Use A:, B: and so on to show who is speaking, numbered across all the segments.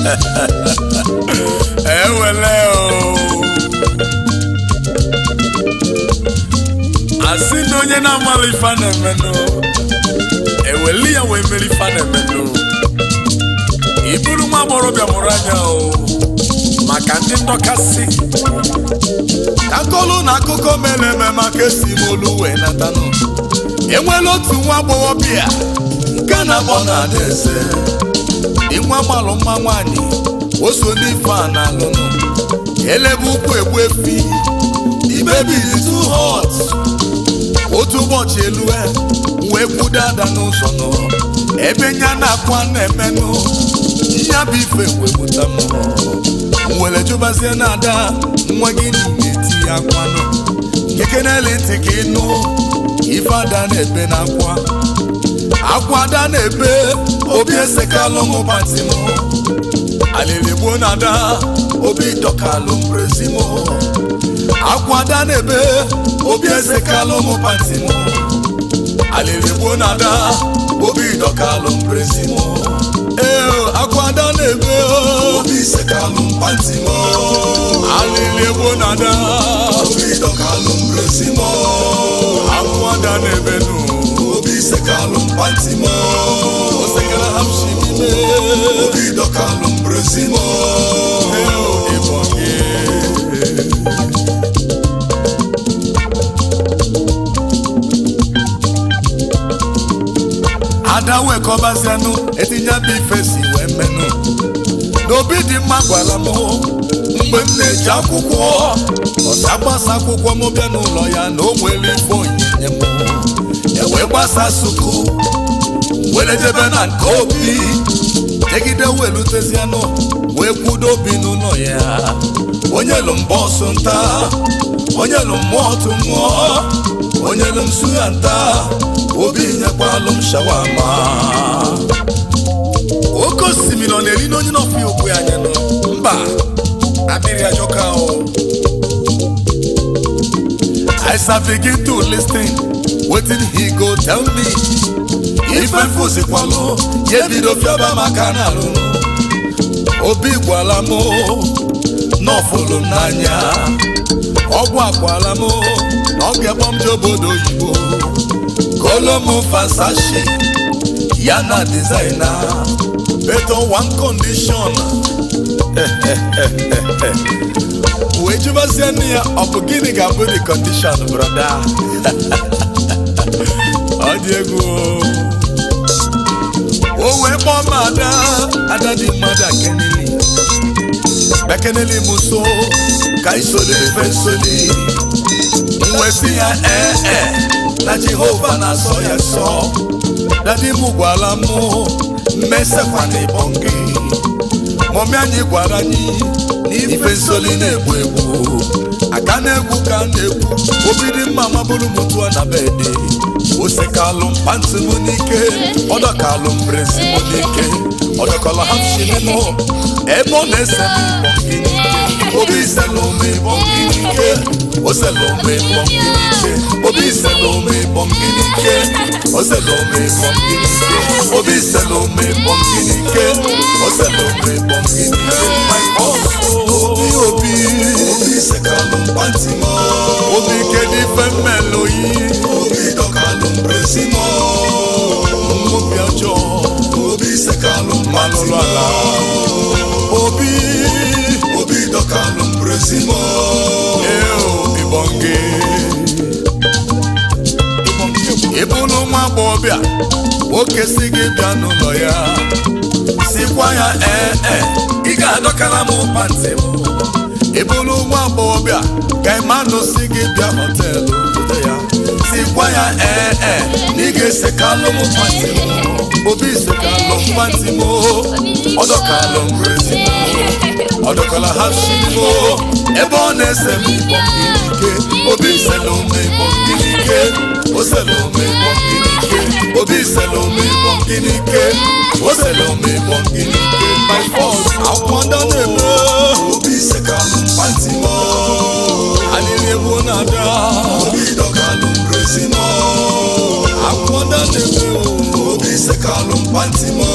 A: ewele eh, o asị na onye na-amala ife na e eweli ya wee mere ife na-emenụ iburu nwa agbọrọbịa mụrụ anya o maka ndị si. akọlụ na akụkọ mere eme maka esi molu wee natanụ e otu nwa agbọghọbịa nke na-abọ na adaeze ịnwa gbalụ mma nwanyị oso n'ife a na alụnụ elebe ụkwụ egbu efi ibebi too hot otu ụbọchị elu e, wee kwudo ada n'ụzọ nọ ebe nya na-akwa na-emenụ ya bụ ife wee gbuta m were jụbazie na ada nwa gị na-eti ya akwanụ kekeneli ntị ka ịnụ ife ada na-ebe na akwa akwada na-ebe obi pati patimo aliligbo na ada obi dọkalụm prezimo akwada na-ebe obi pati patimo aliligbo na ada obi dọkalụm prezimo ee akwada na-ebe obi pati patimo aliligbo na ada obi dọkalụm prezimo akwada na-ebe nụ Sekalum pantimo Sekala hamshi mime Udido kalum brezimo Heo ibonye Adawe kobasenu Etinya bifesi wemenu N'obi dị mma gwara m mgbe m na-eji akwụkwọ ọsa gbasa akwụkwọ m bịa n'ụlọ ya na o nwere ife onyinye gbasa suku were jebe na nke obi jegide welutezianụ wee kwudo obi n'ụlọ ya onye lụ mba ọsụ nta onye lụ mmụọ tụ onye lụ nsu ya nta obi nyekwalụ m shawama oke osimiri ọ na-eri n'onye n'ọfụ ya okwu ya anya nọ mba na mmiri ajọka ahụ I gị to listing wetin he go tell me ife fụzikwalụ ya ebido fiaba maka na alụ obi gwala m n'ọfụlụ n'anya ọgwụ akwala m na ọ ga-egbo m je obodo oyibo kolo m fasashi ya na dizaina beto one kondishon wee jụbazie nne ya ọ bụ gịnị ga-abụ di kondishon brother dị egwu o wee kpọọ m ada ada dị mmadụ akeneli ekeneli m so ka isoro efe nsoli mwesi ya ee ee na jehova na-asọ ya sọ dadi m gwara m mmesekwa na ịbọn gị mọmi anyị gwara anyị na ife nsoli na-egbu egbu aka na-egwu ka na-egwu dị mma mabụrụ m tụọ na dị. o. mpantị mụ n'ike ọdọkalụ n'ike ebe n'ike obi ịbọ n'ike ịbọ gị n'ike obi ịbọ n'ike ịbọ gị n'ike obi ịbọ n'ike ịbọ gị Maximo Ibonge ịbụrụ nwa agbọghọbịa nwoke si gị bịa n'ụlọ ya sikwa ya ee eh, ee eh, ị ga-adọkara m pati m ịbụrụ nwa agbọghọbịa ka Emmanuel si gị bịa họteelụ obodo ya sikwa ya ee eh, ee na ị ga-esekalụ m pantị m obi sekalụ pantị m ọdọkalụ m oh, ọdọkwala ha shiko ebe ọ na-ese m ịkpọ obi sela ome ịkpọ mmiri o sela ome ịkpọ mmiri obi sela ome ịkpọ mmiri o sela ome ịkpọ mmiri my force akwụkwọ na-eme obi seka m mkpati m alịrị ebu na-ada obi dọka nụ mbrezi m akwụkwọ na-eme Olise kalumpanti mo.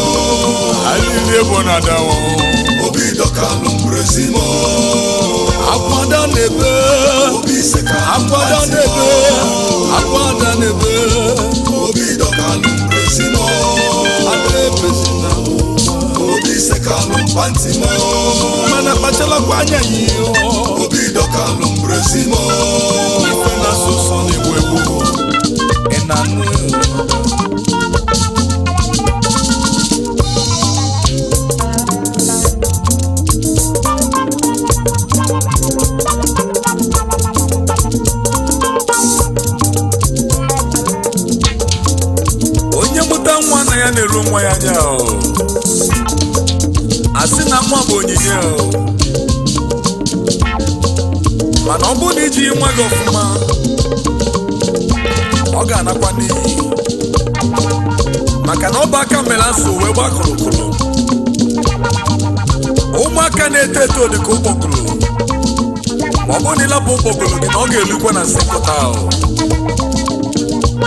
A: Alile da wo. Obi dokalum brezi mo. Akwada nebe. Olise kalumpanti mo. Akwada nebe. Obi dokalum brezi mo. Adebezi na wo. Olise kalumpanti mo. Mana pachela kwanya yi o. Obi dokalum brezi mo. Ife na sosan ewu ewu. Enanu. ya na-eru nwa ya anya asị na nwa bụ onyinye mana ọ bụrụ na iji nwa gị ọfụma ọ ga-anakwa n'iyi maka na ọ bụ aka mere asụ wee gbakọrọkụrụ ụmụaka na-eto eto dịka ụkpọkụrụ ma ọ bụrụ na ịlapụ ụkpọkụrụ gị na ọ ga-elukwa na sekọta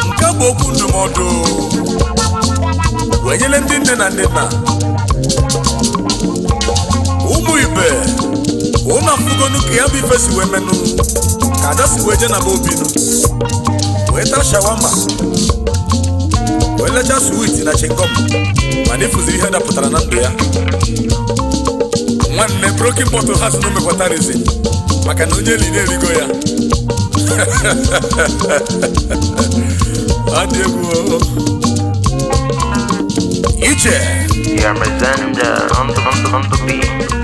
A: nke bụ okwu ndụmọdụ wee ndị nne na nne na ụmụ ibe ụmụ afụgonu ka ya bụ ife si wee menụ ka ada si wee je na be obinu wee taa shawama wee lecha swit na chingom mana ịfụzi ihe dapụtara na ndụ ya nwanne brokin bọtụl ha si na omekwata maka na onye eli na-erigo ya you Ja my zędę, on to, on to, on to beat.